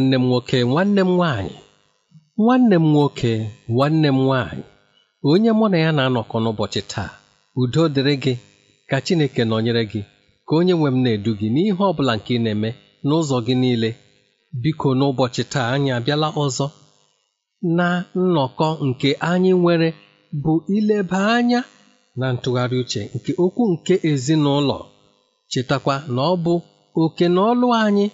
nwanne m nwoke nwanne m nwaanyị nwanne m nwoke nwanne m nwaanyị onye mụ na ya na-anọkọ n'ụbọchị taa udo dịrị gị ka Chineke nọnyere gị ka onye nwe m na-edu gị n'ihe ọ bụla nke ị na-eme n'ụzọ gị niile biko n'ụbọchị taa anyị abịala ọzọ na nnọkọ nke anyị nwere bụ ileba anya na ntụgharị uche nke okwu nke ezinụlọ chetakwa na ọ bụ oke na ọlụ anyị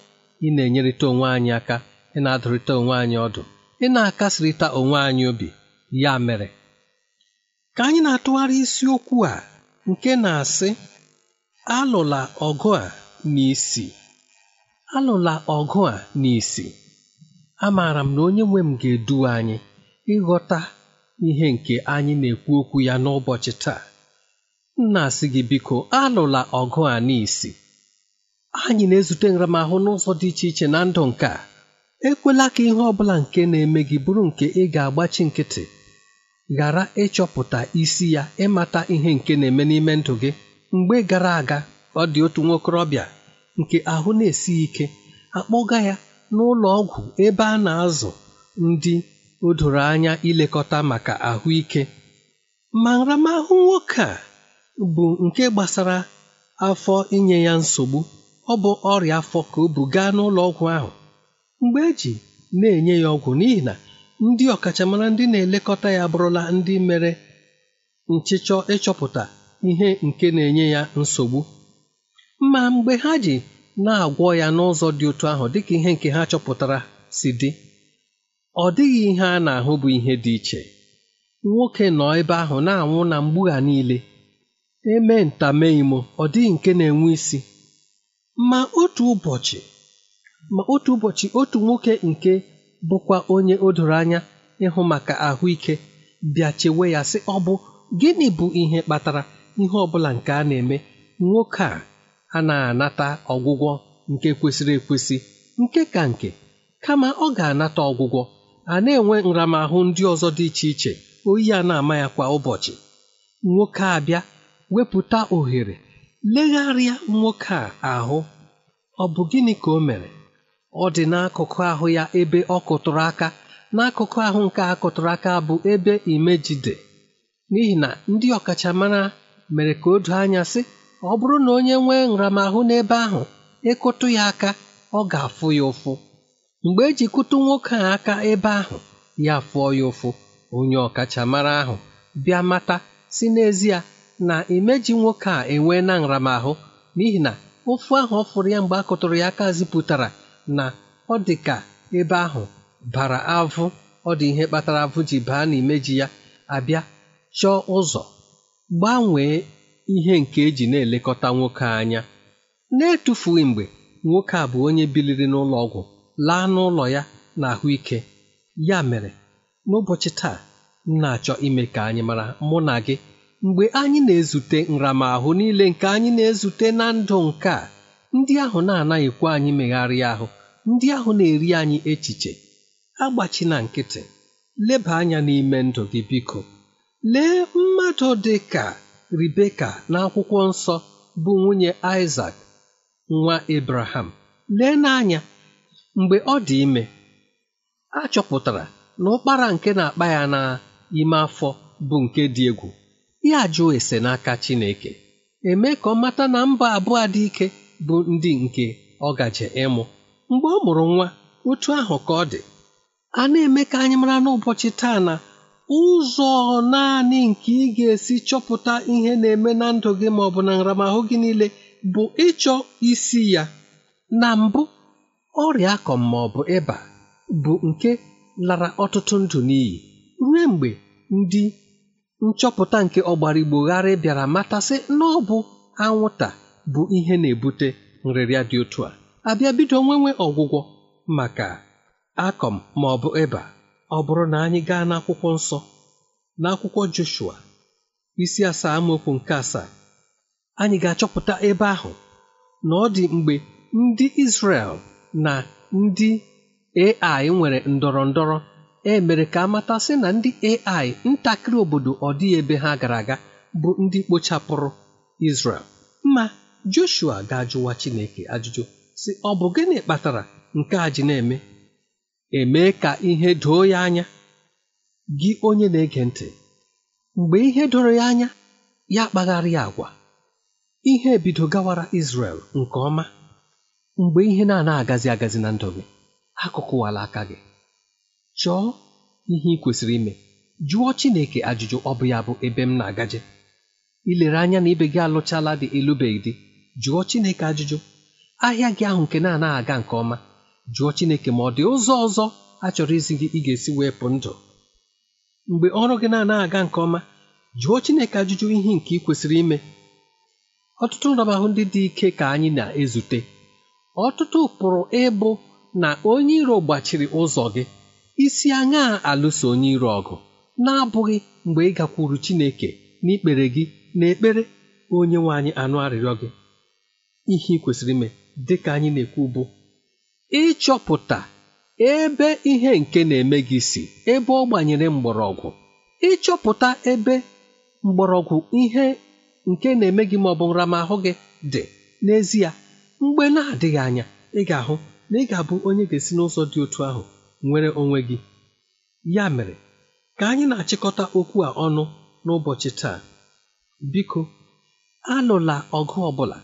ị na-enyerịta onwe anyị aka ị na-adụrịta onwe anyị ọdụ ị na-akasịrịta onwe anyị obi ya mere ka anyị na-atụgharị isiokwu a nke na-asị alụla ọgụ a n'isi alụla ọgụ a n'isi amaara m na onye nwe m ga-edu anyị ịghọta ihe nke anyị na-ekwu okwu ya n'ụbọchị taa m na-asị gị biko alụla ọgụ a n'isi anyị na-ezute nramahụ n'ụzọ dị iche iche na ndụ nke a ekwela ka ihe ọ bụla nke na-eme gị bụrụ nke ị ga-agbachi nkịtị ghara ịchọpụta isi ya ịmata ihe nke na-eme n'ime ndụ gị mgbe gara aga ọ dị otu nwokorobịa nke ahụ na-esi ike akpọga ya n'ụlọ ọgwụ ebe a na-azụ ndị o doro anya ilekọta maka ahụike ma nramahụ nwoke a bụ nke gbasara afọ inye ya nsogbu ọ bụ ọrịa afọ ka o bu gaa n'ụlọ ọgwụ ahụ mgbe eji na-enye ya ọgwụ n'ihi na ndị ọkachamara ndị na-elekọta ya abụrụla ndị mere nchịchọ ịchọpụta ihe nke na-enye ya nsogbu ma mgbe ha ji na-agwọ ya n'ụzọ dị otu ahụ dịka ihe nke ha chọpụtara si dị ọ dịghị ihe a na-ahụ bụ ihe dị iche nwoke nọ ebe ahụ na-anwụ na mgbugha niile eme imo ọ dịghị nke na-enwe isi Ma otu ụbọchị, Ma otu ụbọchị, otu nwoke nke bụkwa onye o doro anya ịhụ maka ahụike bịa chewe ya sị ọ bụ gịnị bụ ihe kpatara ihe ọbụla nke a na-eme nwoke a anaghị anata ọgwụgwọ nke kwesịrị ekwesị nke ka nke kama ọ ga-anata ọgwụgwọ a na-enwe nramahụ ndị ọzọ dị iche iche oyi a na-ama ya kwa ụbọchị nwoke a bịa wepụta ohere legharịa nwoke a ahụ ọ bụ gịnị ka o mere ọ dị n'akụkụ ahụ ya ebe ọ kụtụrụ aka n'akụkụ ahụ nke a kụtụrụ aka bụ ebe imejide. n'ihi na ndị ọkachamara mere ka o doo anya sị ọ bụrụ na onye nwee nramahụ n'ebe ahụ ịkụtụ e ya aka ọ ga-afụ ya ụfụ mgbe eji kụtụ nwoke a aka ebe ahụ ya fụọ ya ụfụ onye ọkachamara ahụ bịa mata si n'ezie na imeji nwoke a enwee na nramahụ n'ihi na ofu ahụ ọ fụrụ ya mgbe a kụtụrụ ya aka zipụtara na ọ dị ka ebe ahụ bara avụ ọ dị ihe kpatara avụ ji baa na imeji ya abịa chọọ ụzọ gbanwee ihe nke eji na-elekọta nwoke anya na-etufughị mgbe nwoke a bụ onye biliri n'ụlọ ọgwụ laa n'ụlọ ya na ahụike ya mere n'ụbọchị taa m na-achọ ime ka anyị mara mụ na gị mgbe anyị na-ezute nramahụ niile nke anyị na-ezute na ndụ nke a ndị ahụ na-anaghịkwa anyị megharịa ahụ ndị ahụ na-eri anyị echiche na nkịtị leba anya n'ime ndụ gị biko lee mmadụ dị ka Ribeka n'akwụkwọ nsọ bụ nwunye isak nwa Abraham lee n'anya mgbe ọ dị ime a na ụkpara nke na-akpa ya n'ime afọ bụ nke dị egwu ya jụọ ese n'aka Chineke eme ka ọ mata na mba abụọ dị ike bụ ndị nke ọ gaje ịmụ mgbe ọ mụrụ nwa otu ahụ ka ọ dị a na-eme ka anyị mara n'ụbọchị taa na ụzọ naanị nke ị ga-esi chọpụta ihe na-eme na ndụ gị ma ọ bụ na nramahụ gị niile bụ ịchọ isi ya na mbụ ọrịa akọm ma ịba bụ nke lara ọtụtụ ndụ n'iyi ruo mgbe ndị nchọpụta nke ọgbara ọgbarigboghara bịara matasị na ọ bụ anwụnta bụ ihe na-ebute nrịrịa dị otu a abịa bido nwenwe ọgwụgwọ maka akọm ma ọ bụ ịba ọ bụrụ na anyị gaa n'akwụkwọ nsọ n'akwụkwọ Joshua isi asaa amaokwu nke asaa anyị ga-achọpụta ebe ahụ na ọ dị mgbe ndị Izrel na ndị Ai nwere ndọrọ ndọrọ e mere ka amata si na ndị ai ntakịrị obodo ọ ebe ha gara aga bụ ndị kpochapụrụ Israel mma Joshua ga-ajụwa Chineke ajụjụ si ọ bụ gịnị kpatara nke a ji na-eme eme ka ihe doo ya anya gị onye na-ege ntị mgbe ihe doro ya anya ya kpagharịa agwa ihe ebido gawara Israel nke ọma mgbe ihe na-ana agazi agazi na ndụ gị akụkụwala aka gị chọọ ihe ị kwesịrị ime jụọ Chineke ajụjụ ọ bụ ya bụ ebe m na-agaje ilere anya na ibe gị alụchala dị ịlụbeghị dị, jụọ Chineke ajụjụ ahịa gị ahụ nke na-anaghị aga nke ọma jụọ Chineke ma ọ dị ụzọ ọzọ a chọrọ izi gị ị ga-esi wepụ ndụ mgbe ọrụ gị na-anaghị aga nke ọma jụọ Chineke ajụjụ ihe nke ị kwesịrị ime ọtụtụ nramahụ ndị dị ike ka anyị na-ezute ọtụtụ pụrụ ịbụ na onye iro gbachiri ụzọ gị isi aṅaa alụso onye iro ọgụ na-abụghị mgbe ị gakwuru Chineke n'ikpere gị na ekpere onye nwe anyị anụ arịrịọ gị ihe ị kwesịrị ime dịka anyị na-ekwu bụ ịchọpụta ebe ihe nke na-eme gị si ebe ọ gbanyere mgbọrọgwụ ịchọpụta ebe mgbọrọgwụ ihe nke na-eme gị ma ọ bụ nramahụ gị dị n'ezie mgbe na-adịghị anya ị ga-ahụ na ị ga-abụ onye ga-esi n'ụzọ dị otu ahụ nwere onwe gị ya mere ka anyị na-achịkọta okwu a ọnụ n'ụbọchị taa biko anụla ọgụ ọbụla,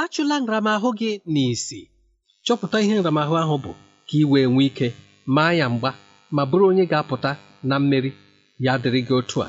achụla nramahụ gị n'isi chọpụta ihe nramahụ ahụ bụ ka ị wee nwee ike maa ya mgba ma bụrụ onye ga-apụta na mmeri ya dịrị gị otu a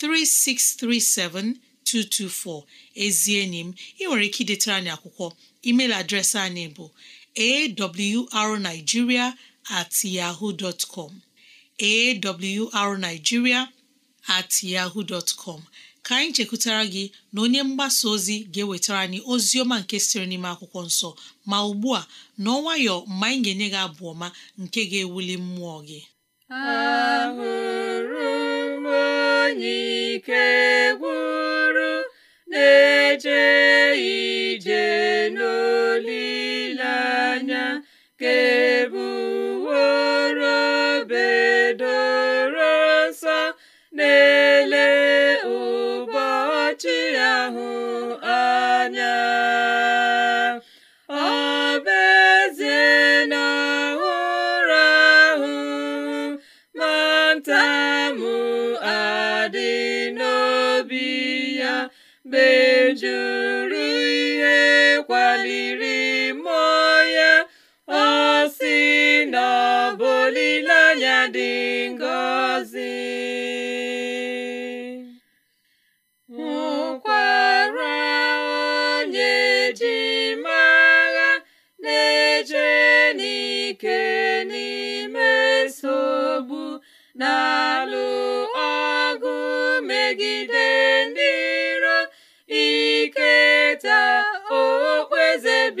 3637224 ezi enyi m ị nwere ike idetara anyị akwụkwọ email adreesị anyị bụ arigiria at at yahoo dot ka anyị chekwutara gị na onye mgbasa ozi ga-ewetara anyị ozi ọma nke siri n'ime akwụkwọ nsọ ma ugbu a n'ọnwayọ mgbe anyị ga-enye gị abụ ọma nke ga-ewuli mmụọ gị onye ike gwụrụ na-eje ije n'olileanya kebu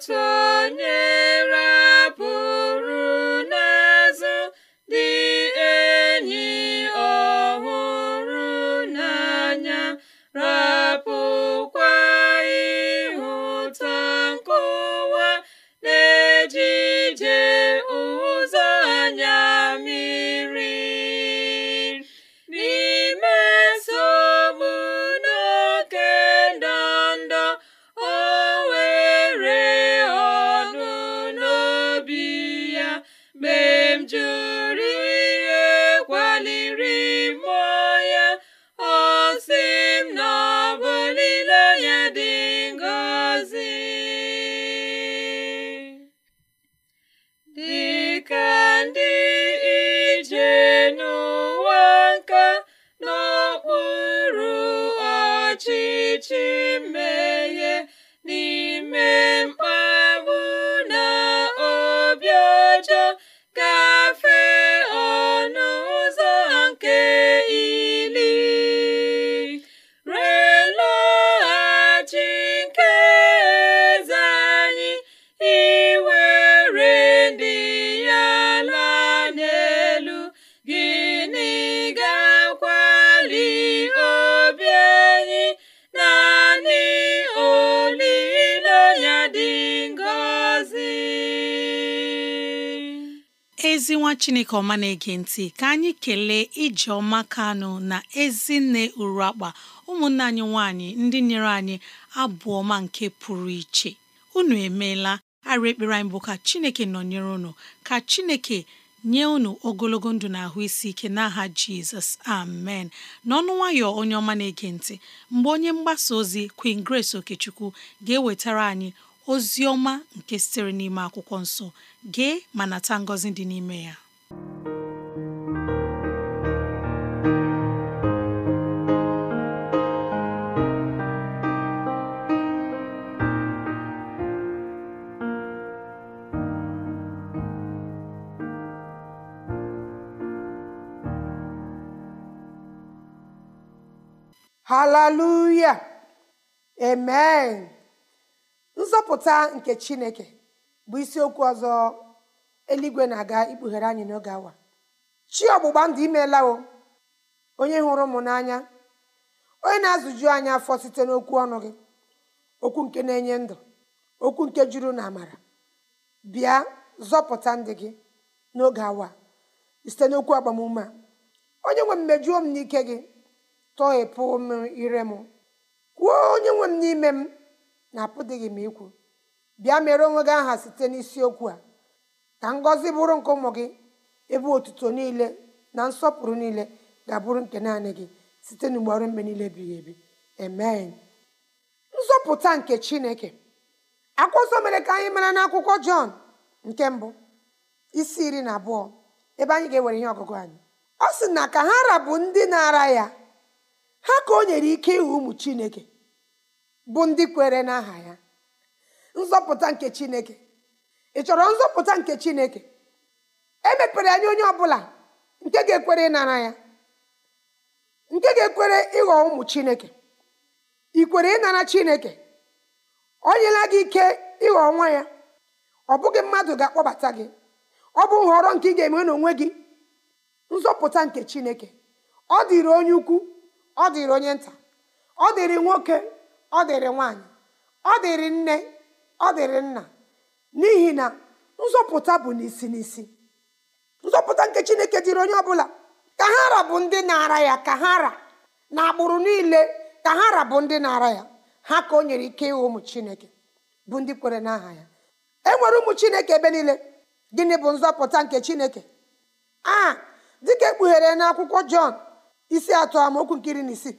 tunyere ezi nwa chineke ọma na-ege ntị ka anyị kelee ije ọma kanụ na ezinne uru akpa ụmụnne anyị nwanyị ndị nyere anyị ọma nke pụrụ iche unu emeela arị ekpere anyị bụ ka chineke nọnyere unu ka chineke nye unu ogologo ndụ na ahụ isi ike n'aha jizọs amen n'ọnụ nwayọ onye ọma na-ege ntị mgbe onye mgbasa ozi queen grace okechukwu ga-ewetara anyị ozi ọma nke sitere n'ime akwụkwọ nso gee ma nata ngọzi dị n'ime ya hallelujah amen nzọpụta nke chineke bụ isiokwu ọzọ eluigwe na-aga ikpughere anyị n'oge awa chi ọgbụgba ndụ o onye hụrụ m n'anya onye na-azụju anyị afọ site n'okwu ọnụ gị okwu nke na-enye ndụ okwu nke juru na amara bịa zọpụta ndị gị n'oge awa site n'okwu agbamume a onye nwe m mejuo m n'ike gị tọghepụ m ire m kwuo onye nwe m n'ime m na apụdịghị m ikwu bịa mere onwe gị aha site n'isiokwu a ka ngọzi bụrụ nke ụmụ gị ebe otuto niile na nsọpụrụ niile ga-abụrụ nke naanị gị site n'ugbo ọrụ mgbe niile ebighị ebi amen nzọpụta nke chineke akwụkwọ mere ka anyị mara n'akwụkwọ jọn nke mbụ isi iri na abụọ ebe anyị ga-ewere ihe ọgụgụ anyị ọ sị na ka ha rabụ ndị na-ara ya ha ka o nyere ike ịhụ ụmụ chineke bụ ndị kwere n'aha ya nzọpụta nke chineke ị chọrọ nzọpụta nke chineke emepere anya onye ọbụla nke ga-ekwere ịnara ya nke ga-ekwere ịghọ ụmụ chineke ị kwere ịnara chineke o nyela gị ike ịghọ nwa ya ọ bụghị mmadụ ga-akpọbata gị ọ bụ nhọrọ nke ị ga-eme n'onwe gị nzọpụta nke chineke ọ dịrị onye ukwu ọ dịrị onye nta ọ dịrị nwoke ọ dịrị nwaanyị ọ dịrị nne ọ dịrị nna n'ihi na nzọpụta bụ n'isi n'isi nzọpụta nke chineke dịrị onye ọbụla ka ha ra bụ ndị na-ara ya ka ha ra na agbụrụ niile ka ha ra bụ ndị na-ara ya ha ka o nyere ike ịghọ ụmụ chineke bụ ndị kwere n'aha ya e nwere ụmụ chineke ebe niile gịnị bụ nzọpụta nke chineke a dịka ekpughere n'akwụkwọ jọn isi atọ amaokwu nkiri na isii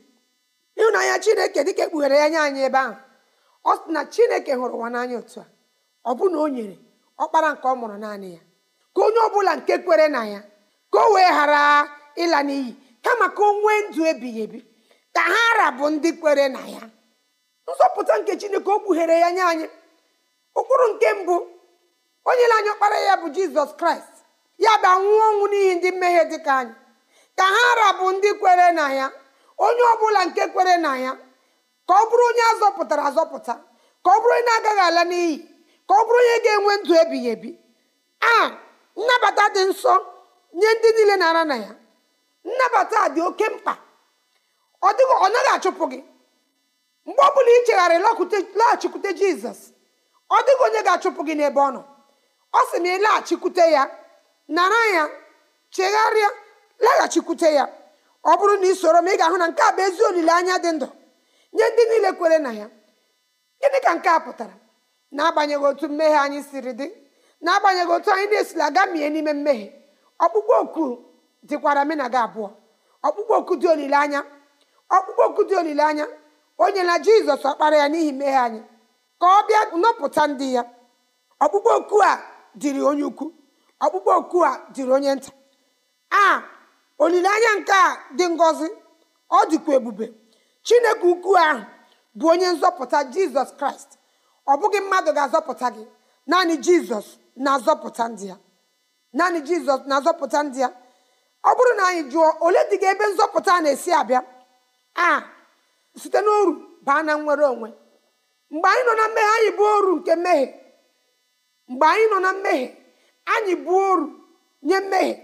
ịhụnanya chineke dịka ekpughere ya nye anyị ebe ahụ ọ sị na chineke hụrụ ụwa n'anya otu a ọ bụ na o nyere ọkpara nke ọ mụrụ naanị ya ka onye ọbụla nke kwere na ya ka o wee ghara ịla n'iyi kama ka o nwee ndụ ebighị ebi ka ha rabụ ndị kwere na ya nzọpụta nke chineke o kpughere ya nye anyị ụkpụrụ nke mbụ onye na anyị ọkpara ya bụ jizọs kraịst ya bụ anwụ ọnwụ n'ihi ndị mmehie dịka anyị ka ha rabụ ndị kwere na ya onye ọbụla nke kwere na ya ka ọ bụrụ onye azọpụtara azọpụta ka ọ bụrụ onye na-agaghị ala n'iyi ka ọ bụrụ onye ga-enwe ndụ ebighị ebi a nnabata dị nsọ nye ndị niile na-ara na ya nnabata dị oke mkpa ọ dịghị ọ naghị achụpụ gị mgbe ọ bụla ịchegharị laghachikwute jizọs ọ dịghị onye ga-achụpụ gị n'ebe ọ nọ ọ sị na ịlaghachikwute ya nara ya chegharịa laghachikwute ya ọ bụrụ na ị soro m ị ga-ahụ na nke a bụ ezi olileanya dị ndụ nye ndị niile kwere na ya gịnị ka nke a pụtara n'agbanyeghị otu mmehie anyị siri dị n'agbanyeghị otu anyị na-esila aga mie n'ime mmehie ọkpụkpọ oku dịkwara mụ na gị abụọ ọkpụkpọ oku dị olileanya ọkpụkpọ oku dị olileanya onye na jizọs ọkpara ya n'ihi mmehie anyị ka ọ bịa nọpụta ndị ya ọkpụkpọ oku a dịrị onye ukwu ọkpụkpọ oku a dịrị onye nta a olileanya nke a dị ngozi ọ dịkwa ebube chineke ukwu ahụ bụ onye nzọpụta jizọs kraịst ọ bụghị mmadụ ga-azọpụta gị naanị jizọs na-azọpụta ndị ya naanị jizọs na-azọpụta ndị ya ọ bụrụ na anyị jụọ ole dị gị ebe nzọpụta na-esi abịa a site n'oru baa na nwere onwe mgbe anyị nọ na mmehie anyị bụ oru nke mmehie mgbe anyị nọ na mmehie anyị bụ oru nye mmehie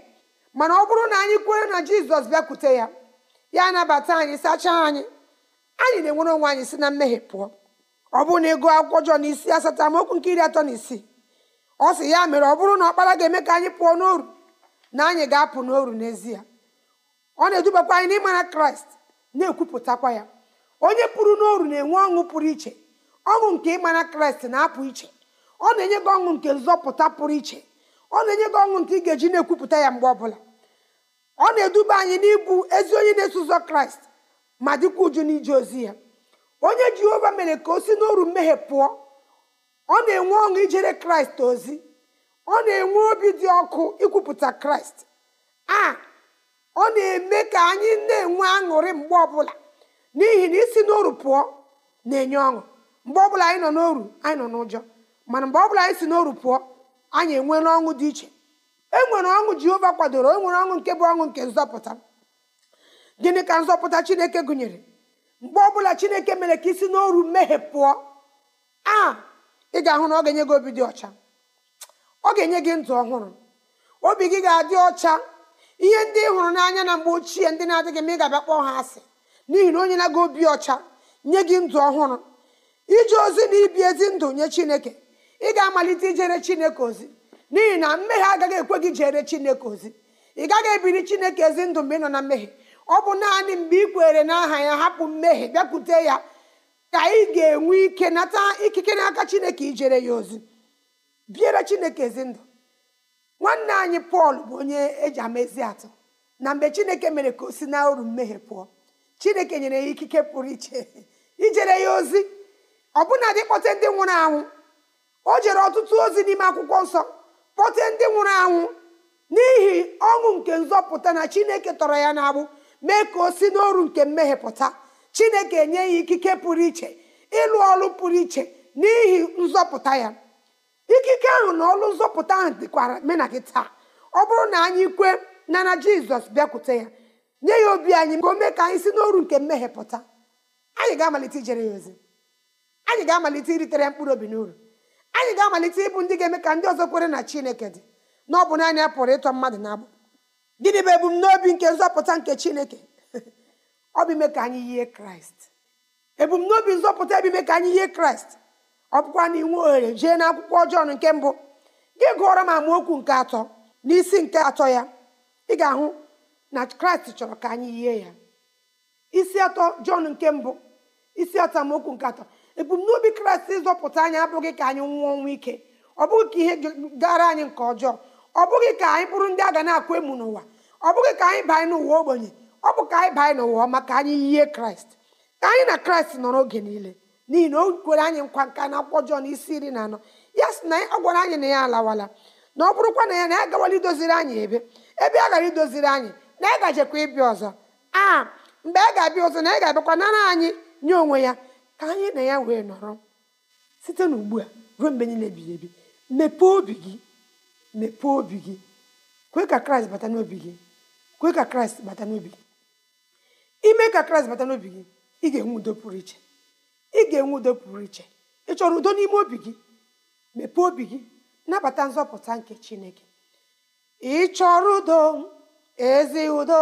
mana ọ bụrụ na anyị kwere na jizọs bịakwute ya ya anabata anyị sachaa anyị anyị na-enwere onwe anyị si na mmehie pụọ ọ bụrụ na ịgụ akwụkwọ Jọn isi asatọ amaokwu nke iri atọ na isii ọ sị ya mere ọ bụrụ na ọkpara ga-eme ka anyị pụọ n'oru na anyị ga-apụ n'oru n'ezie ọ na-edubakwa anyị n'ịmara kraịst na-ekwupụtakwa ya onye pụrụ n'oru na-enwe ọṅụ pụrụ iche ọṅụ nke ịmara kraịst na-apụ iche ọ na-enye gị ọṅụ nke nzọpụta pụrụ iche ọ na-enye gị ọṅụ nke ị ga-eji na-ekwupụta ya mgbe ọbụla ọ na-eduba anyị n'ibu ezi onye na-eso ụzọ kraịst ma dịkwa uju n'ije ozi ya onye jehova mere ka o si n'oru mmehie pụọ ọ na-enwe ọṅụ ijere kraịst ozi ọ na-enwe obi dị ọkụ ikwupụta kraịst a ọ na-eme ka anyị na-enwe aṅụrị mgbe ọbụla n'ihi na isi n'oru pụọ na-enye ọṅụ mgbe ọbụla anyị nọ n'oru anyị nọ n'ụjọ mana mgbe ọbụla anyị si n'oru pụọ anyị enweela ọṅụ dị iche e nwere ọṅụ jehova kwadoro e nwere ọṅụ nke bụ ọṅụ nke nzọpụta gịnị ka nzọpụta chineke gụnyere mgbe ọbụla chineke mere ka isi n'oru mmehie pụọ a ị ga-ahụ na ọ ga-enye gị obi dị ọcha ọ ga-enye gị ndụ ọhụrụ obi gị ga-adị ọcha ihe ndị ị hụrụ n'anya na mgbe ochie ndị na-adịghị ma ị ga-abịa kpọọ ha asị n'ihi na onye na-aga obi ọcha nye gị ndụ ọhụrụ ije ozi na ibi ezi ndụ nye chineke ị ga-amalite ijere chineke ozi n'ihi na mmehie agaghị ekwe gị jere chineke ozi ị gaghị ebiri chineke ezi ndụ mgbe ị nọ na mmehie ọ bụ naanị mgbe ị kwere n'aha ya hapụ mmehie bịakwute ya ka ị ga-enwe ike nata ikike n'aka chineke ijere ya ozi biere chineke ezi ndụ nwanne anyị pọl bụ onye eji amezi atọ atụ na mgbe chineke mere ka o si na oru mmehie pụọ chineke nyere ya ikike pụrụ iche ijere ya ozi ọbụna dị kpọte ndị nwụrụ anwụ o jere ọtụtụ ozi n'ime akwụkwọ nsọ kpọte ndị nwụrụ anwụ n'ihi ọṅụ nke nzọpụta na chineke tọrọ ya n'agbụ mee ka o si n'oru nke mmehie pụta chineke nye ya ikike pụrụ iche ịlụ ọrụ pụrụ iche n'ihi nzọpụta ya ikike ahụ na ọlụ nzọpụta ahụ dịkwara mena taa ọ bụrụ na anyị kwe na jizọs bịakwute ya nye ya obi anyị ka o mee ka anyị si n'oru nke mmehie anyị ga-amalite ijere ya ozi anyị ga-amalite iritere mkpụrụ obi n'uru anyị ga-amalite ịbụ ndị ga-eme ka ndị ọzọ kwere na chineke dị na ọ bụ naanị a pụrụ ịtọ mmadụ na agbụ gịnị bụ ebumnobi nke nzọpụta nke chineke ọ bụ ime ka anyị yie kraịst ebumnobi nzọpụta bụ ka anyị yie kraịst ọ bụkwa na inwe ohere jee na akwụkwọ Jọn nke mbụ gị gụọrọ m amaokwu nke atọ n'isi nke atọ ya ị ga-ahụ na kraịst chọrọ ka anyị yie ya isi atọ Jọn nke mbụ isi atọ amaokwu nke atọ ebumnobi kraịst ịzọpụta anyị abụghị ka anyị nwụọ ọnwụ ike ọ bụghị ka ihe gara anyị nke ọjọọ ọ bụghị ka anyị bụrụ ndị a ga na-akwa emu n'ụwa ọ bụghị ka anyị banye n'ụwa ogbenye ọ bụ ka anyị banye n'ụwa ọma ka anyị yie kraịst ka anyị na kraịst nọrọ oge niile n'ihi na o kwere anyị nkwa nka na akwụkwọ Jọn isi iri na anọ ya sị na ọ gwara anyị na ya alawala na ọ bụrụkwa na ya na ya gawala idoziri anyị ebe ebe a gara idoziri anyị na ya gajekwa ịbịa ọzọ a mgbe a ga-abịa ọzọ na ya ga-abịakwa nara anyị nye onwe ya ka anyị na ya wee nọrọ site n'ugbu a ruo mgbe niile ebighị ebi mepee obi gị mepee obi gị kwe ka kraịst bata n'obi gị kwe ka kraịst bata n'obi gị ime ka kraịst bata n'obi gị ị ga-enwe udo pụrụ iche ị ga-enwe udo pụrụ iche ị chọrọ udo n'ime obi gị mepee obi gị nabata nzọpụta nke chineke ị chọrọ udo ezi udo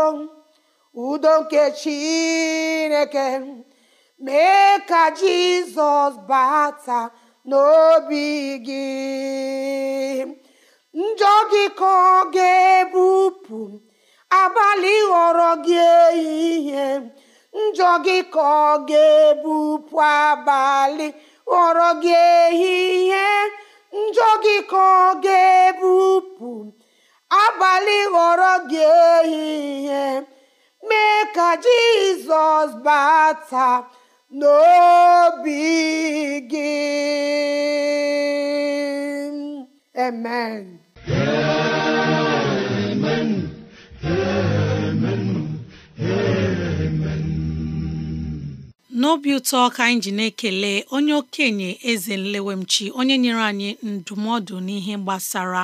udo nke chineke mee ka jizọs bata n'obi gị njọ gị ka ọ ga-ebupụ abalị ghọrọ gị ehihie njọ gị ka ọ ga-ebupụ abalị ghọrọ gị ehihie njọ gị ka ọ ga-ebupụ abalị ghọrọ gị ehihie mee ka jizọs bata n'obi gị amen amen amen amen n'obi ụtọ ka anyị ji na-ekele onye okenye eze nlewemchi onye nyere anyị ndụmọdụ n'ihe gbasara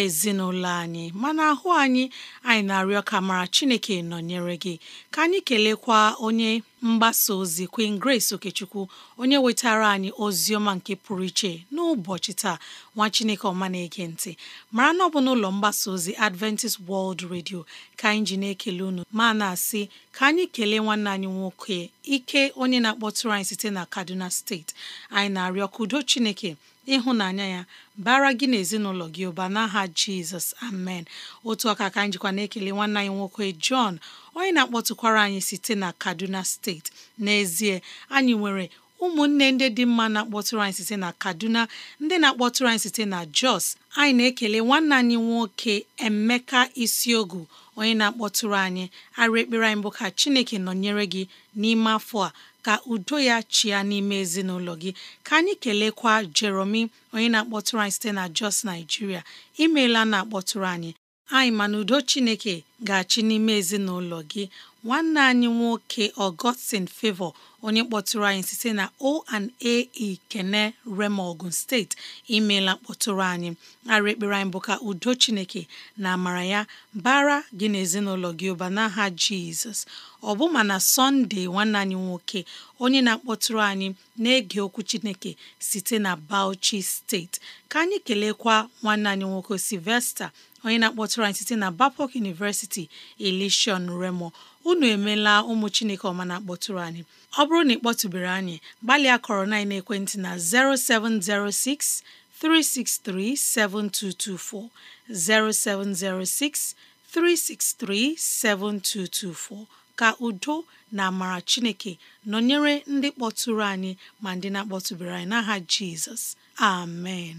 ezinụlọ anyị mana ahụ anyị anyị na-arịọ ka mara Chineke nọnyere gị ka anyị kelekwa onye mgbasa ozi Queen Grace Okechukwu onye wetara anyị ozi ọma nke pụrụ iche n'ụbọchị taa nwa Chineke ọma na-ege ntị mara na ọ bụ n'ụlọ mgbasa ozi Adventist World Radio ka anyị ji na-ekele unu ma na-asị ka anyị kelee nwanne anyị nwoke ike onye na-akpọtụrụ anyị site na Kaduna steeti anyị na-arịọ ka udo Chineke ịhụnanya ya bara gị na ezinụlọ gị ụba n'aha jizọs amen otu ọka ka njikwa na-ekele nwanne anyị nwoke Jọn onye na-akpọtụkwara anyị site na kaduna steeti n'ezie anyị nwere ụmụnne ndị dị mma na-akpọtụrụ anyị site na kaduna ndị na-akpọtụrụ anyị site na jos anyị na-ekele nwanne anyị nwoke emeka isiogu onye na-akpọtụrụ anyị arụ ekpere anyị bụ ka chineke nọnyere gị n'ime afọ a ka udo ya chịa n'ime ezinụlọ gị ka anyị kelekwa Jeromi onye na-akpọtụrụ anyị site na Jos Nigeria imeela na-akpọtụrụ anyị anyị ma na udo Chineke ga-achị n'ime ezinụlọ gị nwanne anyị nwoke Augustine favọ onye kpọtụrụ anyị site na O&A Ikene Rema Ogun steeti imeela mkpọtụrụ anyị ara ekpere anyị bụ ka udo Chineke na amara ya bara gị na ezinụlọ gị ụba n'aha Jizọs ọ bụ ma na Sọnde nwanne anyị nwoke onye na-akpọtụrụ anyị na-ege okwu Chineke site na Bauchi steeti ka anyị kelekwa nwanne anyị nwoke Sylvester onye na-akpọtụrụ anyị site na bapok universiti steeti Ileshion Remo unu emeela ụmụ Chineke ọma na-akpọtụrụ anyị ọ bụrụ na ị kpọtụbere anyị gbalịa kọrọ na ekwentị na 0706 363 7224 0706 363 7224 ka udo na amara Chineke nọnyere ndị kpọtụrụ anyị ma ndị na-akpọtụbere anyị n'aha Jizọs amen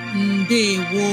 ndewo